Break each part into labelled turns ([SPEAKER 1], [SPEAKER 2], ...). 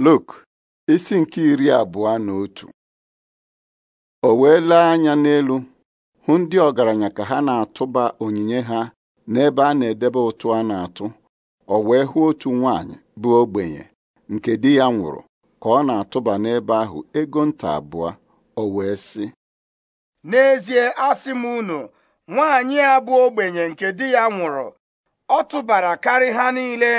[SPEAKER 1] Luk isi nke iri abụọ na otu o wee lee anya n'elu hụ ndị ọgaranya ka ha na-atụba onyinye ha n'ebe a na-edebe ụtụ a na-atụ o wee hụ otu nwanyị bụ ogbenye nke di ya nwụrụ ka ọ na-atụba n'ebe ahụ ego nta abụọ o wee sị
[SPEAKER 2] n'ezie asị m unu nwanyị a bụ ogbenye nke di ya nwụrụ ọ tụbara karị ha niile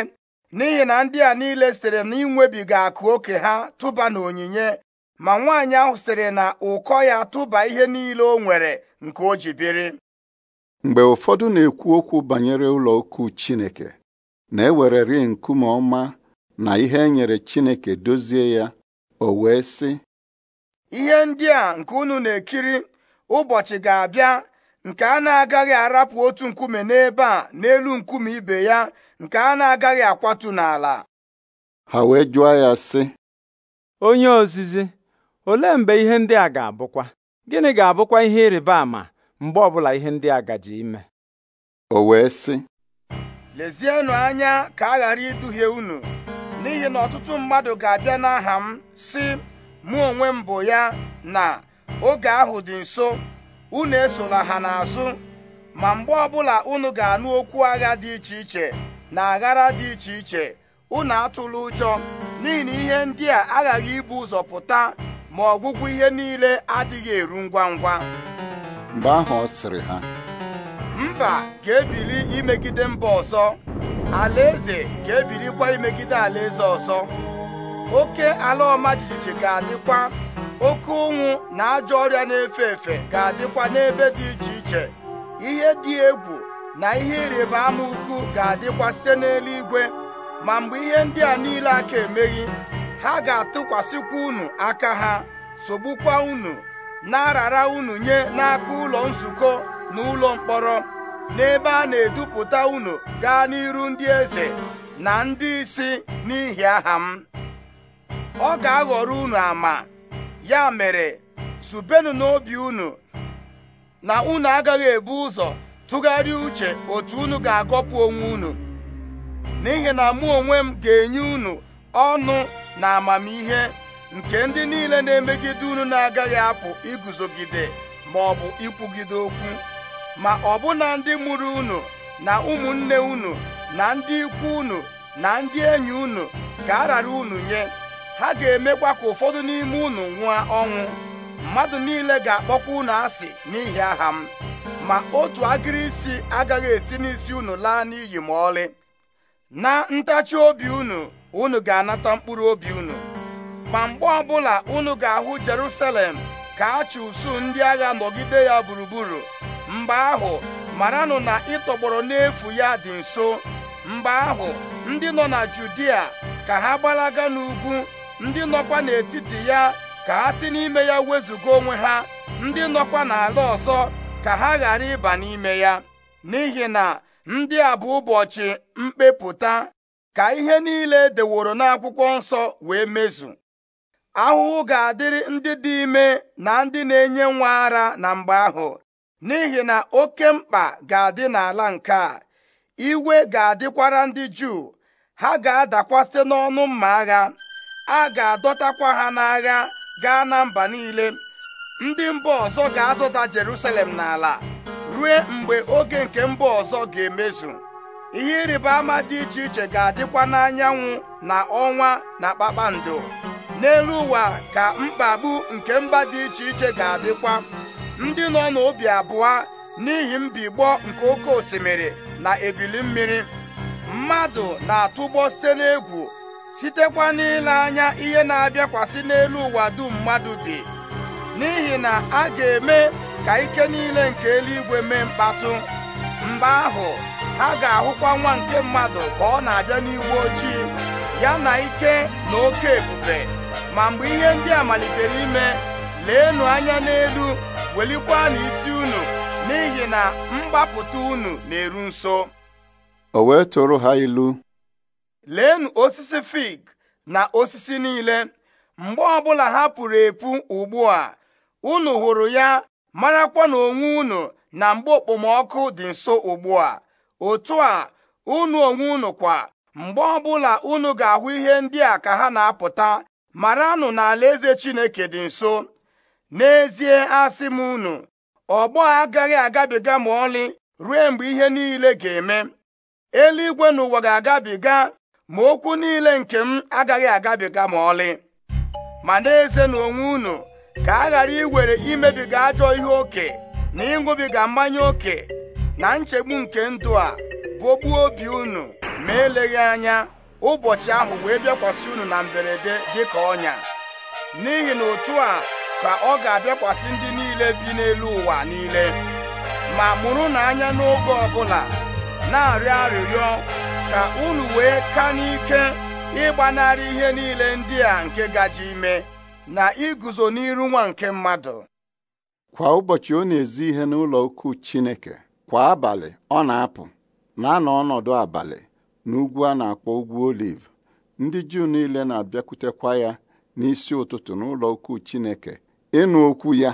[SPEAKER 2] n'ihi na ndị a niile sitere na inwebiga akụ oke ha tụba na onyinye ma nwaanyị ahụ sitere na ụkọ ya tụba ihe niile o nwere nke o ji biri
[SPEAKER 1] mgbe ụfọdụ na-ekwu okwu banyere ụlọ Chineke na-ewereri nkume ọma na ihe e nyere Chineke dozie ya o wee sị
[SPEAKER 2] ihe ndị a nke unu na-ekiri ụbọchị ga-abịa nke a na-agaghị arapụ otu nkume n'ebe a n'elu nkume ibe ya nke a na-agaghị akwatu n'ala
[SPEAKER 1] ha wee jụọ ya sị
[SPEAKER 2] onye ozizi olee mgbe ihe ndị a ga-abụkwa gịnị ga-abụkwa ihe ịrịba ama mgbe ọbụla ihe ndị a gaji ime o wee sị lezienụ anya ka a ghara iduhie unu n'ihi na ọtụtụ mmadụ ga-abịa n'aha m sị mụ onwe m bụ ya na oge ahụ dị nso unu esola ha n'azụ ma mgbe ọbụla unu ga-anụ okwu agha dị iche iche na aghara dị iche iche unu atụla ụjọ n'ihi na ihe ndị a aghaghị ibu ụzọ pụta ma ọgwụgwụ ihe niile adịghị eru ngwa ngwa
[SPEAKER 1] mgbe ahụ ọ sịrị ha
[SPEAKER 2] mba ga-ebili imegide mba ọzọ alaeze ga-ebilikwa imegide alaeze ọzọ oke ala ọma jijiji ga-adịkwa oke ụnwụ na ajọ ọrịa na-efe efe ga-adịkwa n'ebe dị iche iche ihe dị egwu na ihe ịrịba ama ukwu ga-adịkwa site n'eluigwe ma mgbe ihe ndị a niile aka emeghị ha ga-atụkwasịkwa unu aka ha sogbukwa unu na-arara unu nye n'aka ụlọ nzukọ na ụlọ mkpọrọ n'ebe a na-edupụta unu gaa n'iru ndị eze na ndị isi n'ihi aha m ọ ga-aghọrọ unu ama ya mere zubenu n'obi unu na unu agaghị ebu ụzọ tụgharịa uche otu unu ga-agọpụ onwe unu n'ihi na mụ onwe m ga-enye unu ọnụ na amamihe nke ndị niile na-emegide unu na-agaghị apụ iguzogide ma ọ bụ ikwugide okwu ma ọ bụna ndị mụrụ unu na ụmụnne unu na ndị ikwu unu na ndị enyi unu ka a rara unu nye ha ga-emekwa ka ụfọdụ n'ime unu nwụọ ọnwụ mmadụ niile ga-akpọkwa unu asị n'ihi aha m ma otu agịrị isi agaghị esi n'isi unu laa n'iyi ma ọlị na ntachi obi unu unu ga-anata mkpụrụ obi unu ma mgbe ọbụla unu ga-ahụ Jerusalem ka a ụsụ ndị agha nọgide ya gburugburu mgbe ahụ maranụ na ịtọgbọrọ n'efu ya dị nso mgbe ahụ ndị nọ na Judia ka ha gbalaga n'ugwu ndị nọkwa n'etiti ya ka ha si n'ime ya wezụga onwe ha ndị nọkwa n'ala ọzọ ka ha ghara ịba n'ime ya n'ihi na ndị a bụ ụbọchị mkpepụta ka ihe niile deworo n'akwụkwọ nsọ wee mezu ahụhụ ga-adịrị ndị dị ime na ndị na-enye nwa ara na mgbe ahụ n'ihi na oke mkpa ga-adị n'ala nke a iwe ga-adịkwara ndị Juu ha ga adakwasị n'ọnụ mma agha a ga-adọtakwa ha n'agha gaa na mba niile ndị mba ọzọ ga azụta Jerusalem n'ala rue mgbe oge nke mba ọzọ ga-emezu ihe ịrịba ama dị iche iche ga-adịkwa n'anyanwụ na ọnwa na kpakpando n'elu ụwa ka mkpagbu nke mba dị iche iche ga-adịkwa ndị nọ n'obi abụọ n'ihi mbigbọ nke oke osimiri na ebili mmiri mmadụ na-atụgbọ site n'egwu sitekwa n'ile anya ihe na-abịakwasị n'elu ụwa dum mmadụ bi n'ihi na a ga-eme ka ike niile nke eluigwe mee mkpatụ mgbe ahụ ha ga-ahụkwa nwa nke mmadụ ka ọ na-abịa n'igwe ochie ya na ike na oke ebube ma mgbe ihe ndị a malitere ime leenụ anya n'elu welikwa isi unu n'ihi na mgbapụta unu na-eru nso
[SPEAKER 1] o wee tụrụ ha ilu
[SPEAKER 2] leenụ osisi fig na osisi niile mgbe ọbụla ha pụrụ epu ugbu a unu hụrụ ya marakwa na onwe unu na mgbe okpomọkụ dị nso ugbu a otu a unu onwe unu kwa mgbe ọbụla unu ga-ahụ ihe ndị a ka ha na-apụta maranụ na eze Chineke dị nso n'ezie asị m unu ọgbọ agaghị agabiga ma ọlị ruo mgbe ihe niile ga-eme eluigwe na ụwa ga-agabiga ma okwu niile nke m agaghị agabiga ma ọlị ma n'eze na onwe unu ka a ghara iwere imebiga ajọ ihe oke na ịṅụbiga mmanya oke na nchegbu nke ndụ a bụgbuo obi unu ma eleghị anya ụbọchị ahụ wee bịakwasị unu na mberede dị ka ọnya n'ihi na otu a ka ọ ga-abịakwasị ndị niile bi n'elu ụwa niile ma mụrụ na anya n'oge ọbụla na-arịọ arịrịọ ka unu wee ka n'ike ịgbanarị ihe niile ndị a nke gaji ime na iguzo n'iru nwa nke mmadụ
[SPEAKER 1] kwa ụbọchị ọ na-ezi ihe n'ụlọ ukwu Chineke kwa abalị ọ na-apụ na-anọ ọnọdụ abalị n'ugwu a na-akpọ ugwu oliv ndị Juu niile na-abịakwutekwa ya n'isi ụtụtụ n'ụlọ ukwu Chineke ịnụ okwu ya